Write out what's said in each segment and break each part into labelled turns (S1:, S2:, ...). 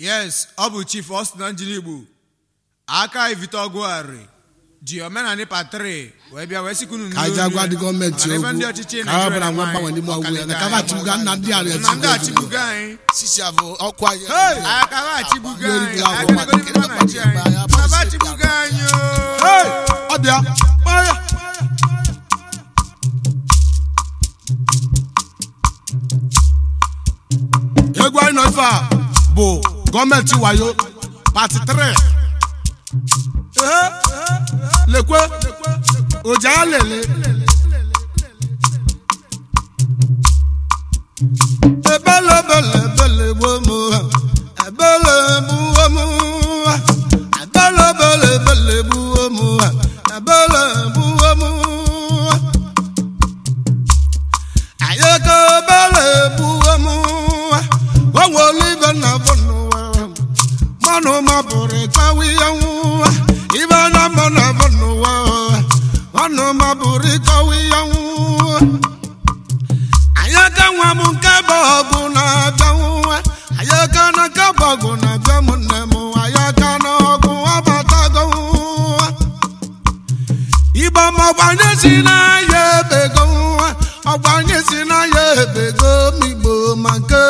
S1: yes ọ bụ chief Austin Njiligbo aka evite ọgụgharị ji omenanị patri wee bịa wee sikunu ka anyị agwa gọọmenti okwu ka nwa mgbanwe n'ime ọgwụ ya na ka achịbuga nna ndị ala echi ndị ọkụ anyị aka egwu anyị nọ ife a bụ gọọmenti wayo pati 3 lekwe lele ebelebelebele nke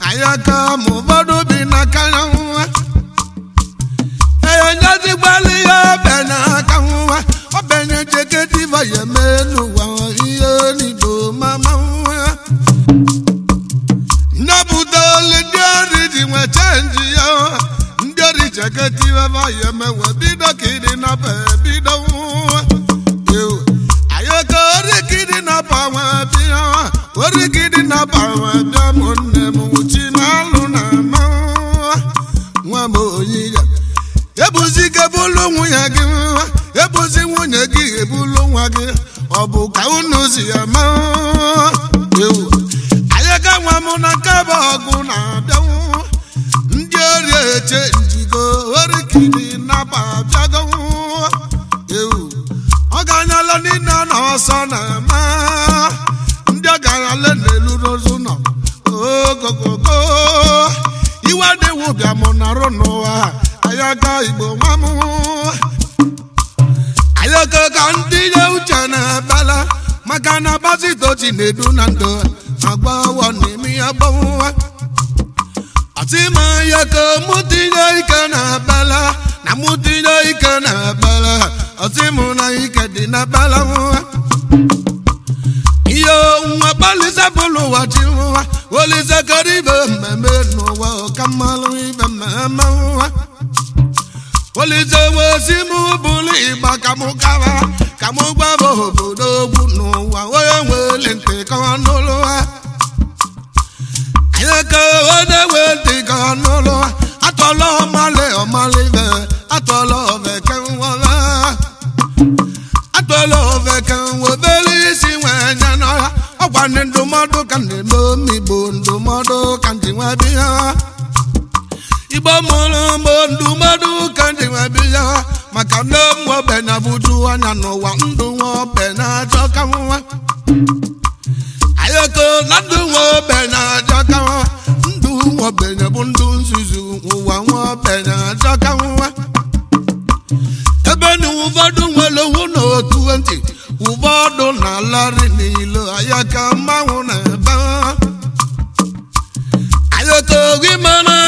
S1: anyị aka ma ụfọdụ bi n'aka na nwa enyezigbalị ya ọbẹ n'aka nwa obenye jegediva ya eme n'ụwa ihe n'igbo mama nwa nnapụta olu ndị ọrụ ji nwe chenji ya ndị ọrụ jegediva ya emewe bido kiri ịdị na bido nwa si ama ewu anyị ga-enwe na nke bụ ọgụ na-abịanwụ ndị ori eche maka na bazitochi na-edu na ndụ agbawa n'imi eme ya gbanwa atimaya ka mụtinye ike na abala na mụtinye ike na abala na ike dị na abala nwa ihe onwe gbalịsa bụlụ ụwa chi nwa olise kara ibe mmemme n'ụwa ọkamalụ ibe mmemme nwa olise wezi m bụrụ ịgba ka mụ gawa ka mụ gbaba obodo ka onye wee dị ka n'ụlọ atọla ọmalị ọmalị be atọla oveke nwobe atọla oveke nwobere isi nwee nye n'ọha ọgwa ndị ka ndị ndụmọdụ ka ndị ha igbo mụrụ ndụmọdụ ka ya maka ụmụ anya nwaobenye bụ ndụ nzuzu ụwa nwaobenye achọka nwa ebe na ụfọdụ nwere hụ na otu ntị ụfọdụ na alarị n'ilo aya ka mmanwụ na ebe ayaka ogi mana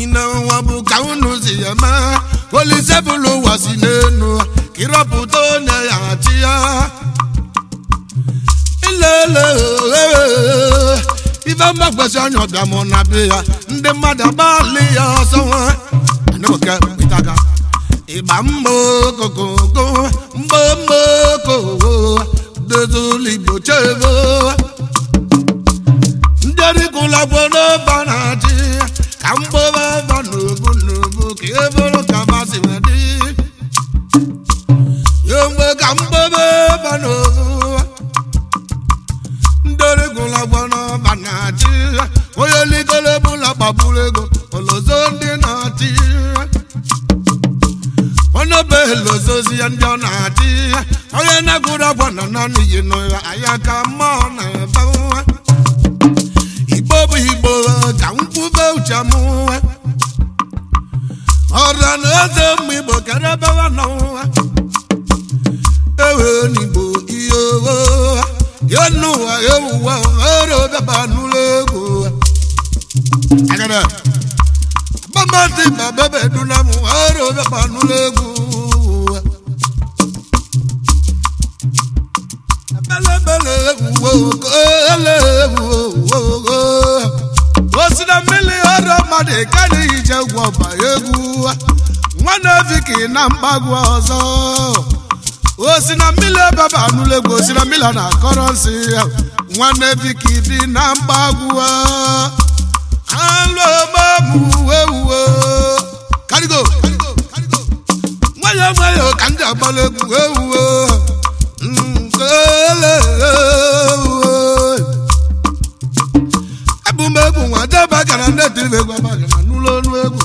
S1: ine ụwa bụ ka unu si ya maa, Olise ụwa si n'enu ka ịrọpụta onye ya chi ya ilele ife mgbakwesị anya ọbịa na be ya mmadụ agbalị ya ọsọ nwa ịgba mma ndị na-achị ka mgbọwa ebe n'ubu n'ubu ka e bụrụ ka masị wee dị ya mgbe ka mgbọwa ebe n'ubu ndori gwụla gbọrọ ọba na-achị onye ligoro ebula gbagburu ego olozo ndị na-achị onye be elozozi ya ndị ọ na-achị onye na-egwuru agwa na naanị yi n'ụwa anya ka mma eze ụmụ igbo karabawa n'ọnwa ewe n'igbo ihe owe ya n'ụwa ya ewuwa n'ụlọ egwu m n'ụlọ egwu osi na mmiri ọrụ na mgbagwu ọzọ osi na mmiri ebaba anụla egwu osi na mmiri na akọrọ nsị ya nwanne biki dị na karigo ka ndị agbara egwu ewuwe ebumegwu nwa gara ndị egwu abagara n'ụlọ egwu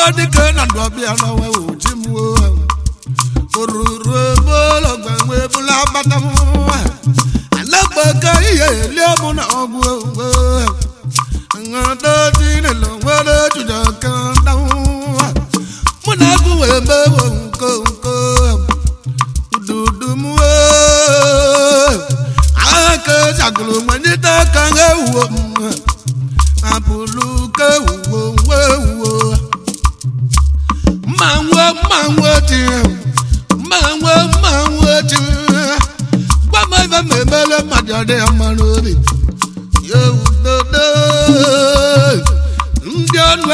S1: ọba dike na ndọbịa n'ọnwa oji m oruru ebe ụlọ gbanwe bụla agbata m anagbaga ihe elie mụ na ọgwụ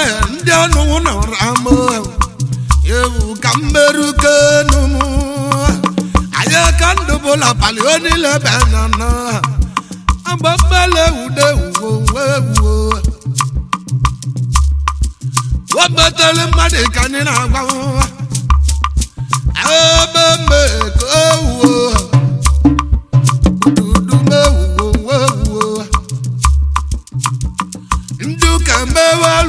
S1: ewe ndị ọnụ nọrọ ama ewu ka mmerukenu m anyị ka ndụ bụla abalị onile be nana agba mmele ewude ewuwo ewuwo webetere mmadụ ka anyị na-agbanwe ebe mme ka ewuwo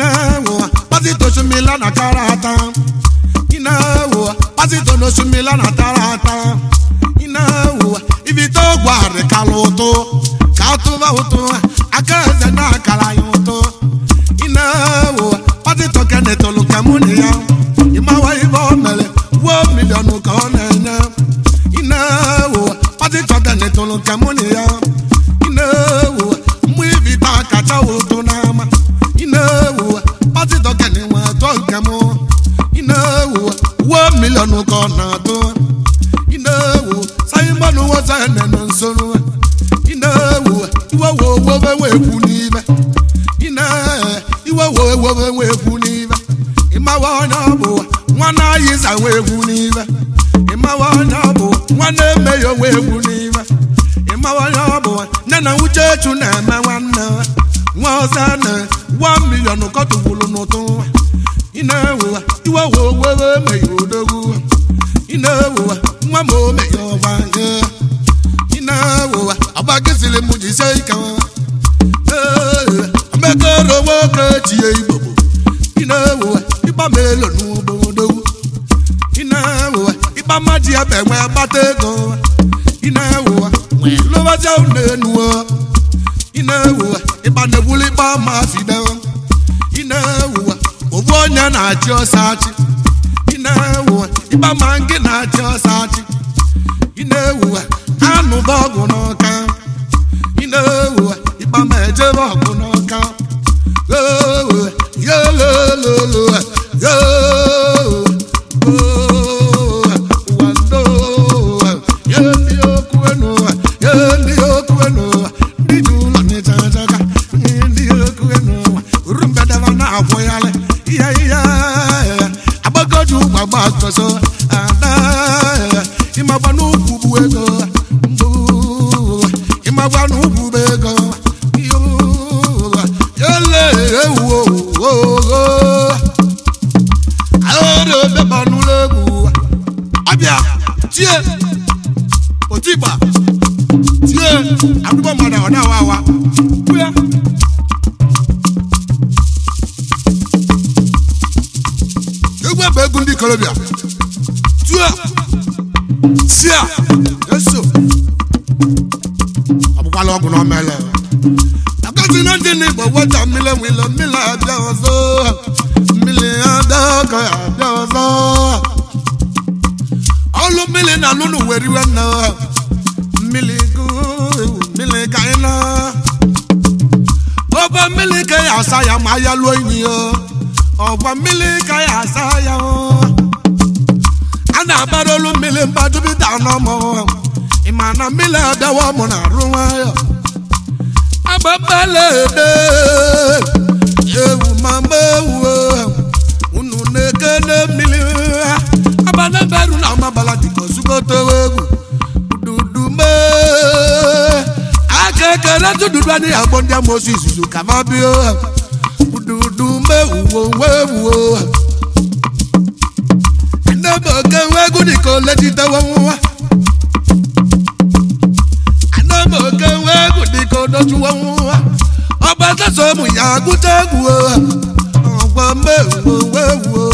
S1: inawo pásítọ̀ sunmi lánà tààràtà inawo pásítọ̀ ló sunmi lánà tààràtà inawo ibi tó gbọ́ ụtụ kàtúbà obe nwe egwu n'ive ịmawa onye egwu n'ive ịmawa onye onwe egwu n'ive ịmawa onye nne na uchechu na-eme nwanne nwa ọzọ na wa milion n'ụtụ ị na-ewuwa iwe wowere na nwa ma omeghị ọgba ị na na-ewuwa ịkpa ma ị na-ewuwa onye na-achị ọsọ achị ị na-ewuwa na-achị ọsọ ị na-ewuwa anụba ọgwụ n'ọka n'ugwu na ogo mmiri ka ya asa ya ma ya lụọ enyi ya ọgwa mmiri ka ya asa ya a na-abara olu mmiri mbadubido anọmụ ịma na mmiri abịawa mụ na arụ nwayọ agbapalede ewu mama ewu unu na-ekene mmiri abanaberu na amabala dịka ozugotewa egwu dudume aka ekele tụdụdụ anyị agbọ ndị amoosu izuzu ka ma bịa ha ududu mewuo wee wuo ha oke nwa egwu dị ka ole jitewa oke dị ka ụmụ ya agụta egwu ha ọgwa mewuo wuo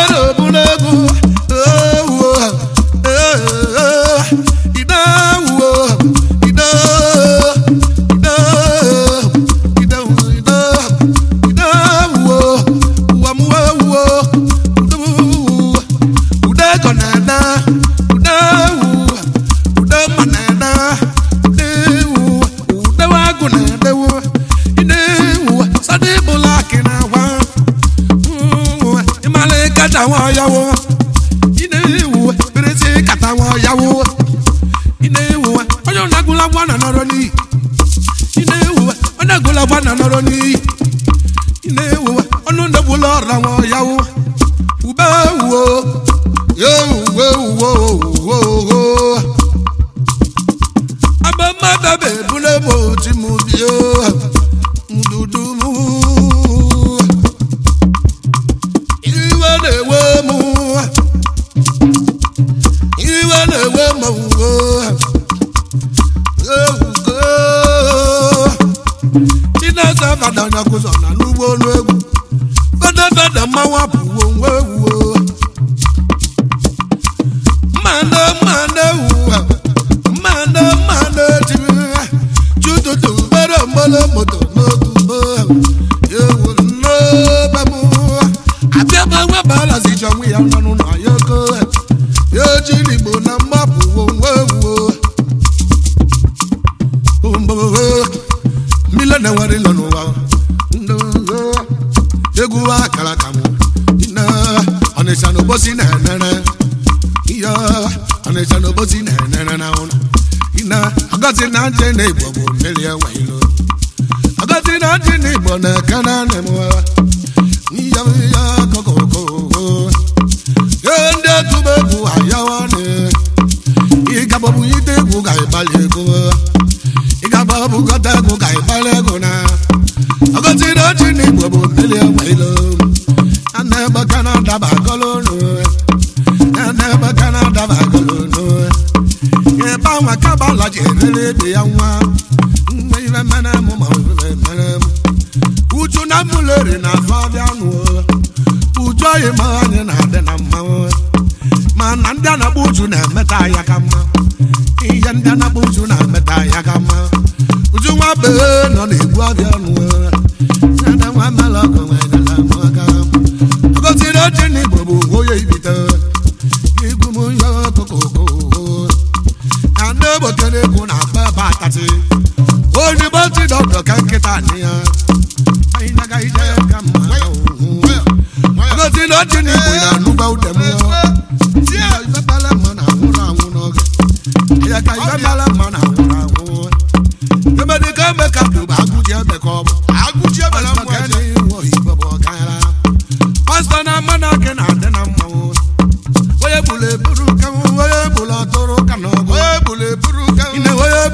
S1: ero bụ n'egwu Chinasa fada na-akụzọ na n'ugbo olu egwu fada fada mmanwụ apụ teli ya wailo agati na jini bona kana ne mwa ni ya ya kokoko yende ayawane na agati na jini bo na meta ya ga mma nwa be nọ na-egbu nwa mala nwa nwanyị na amaga ọgọziri oche na igbo bụ onye ibite igwu m onye ọkụkọ na ndị ogboke na-egwu na akpa ebe onye ka nkịta ya anyị na-agaghị ije ka na igbo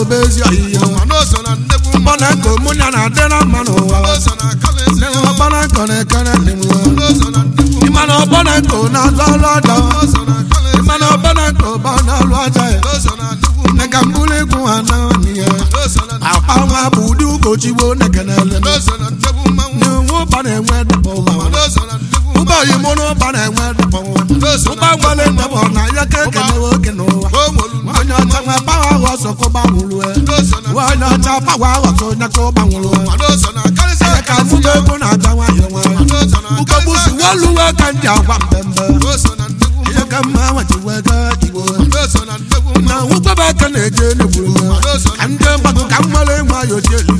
S1: obezi ọhịa ọkpana nkọ mụ ya na-adị na mma n'ụwa ọkpana nkọ na-ekere ndị m na-azụ alụ aja nkọ ba na-alụ aja ya mbụlụ bụ na-enwe ụba na-enwe ụba na ụba na-enwe ụba na ya ka ekenewe ọsọ kó bá wùlú ẹ wọ́n náà ta pàwọ́ ọ̀tún náà kó bá wùlú ẹ ẹ ká fún gbogbo náà gbà wá yẹ wọn ugobusi wọ́n lu wọ́n kàn dí àwa ká ti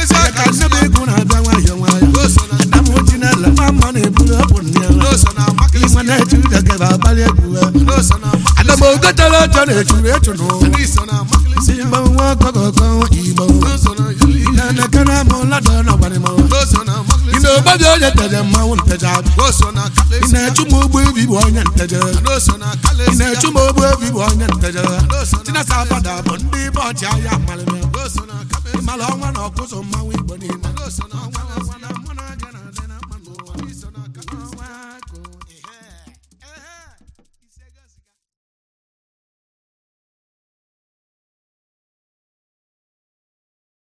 S1: ọ na-echuru echunu igbo na-eke na na gbarịma ị na-ogbabi onye nteje mmanwụ nteje ị echu ogbu ebi bụ onye nteje ị echu m ogbu ebi bụ onye abada bụ ndị ibe ọnwa na ọkụzụ mmanwụ igbo niile